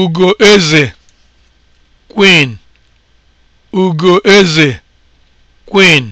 Ugoeze (Queen), Ugoeze (Queen)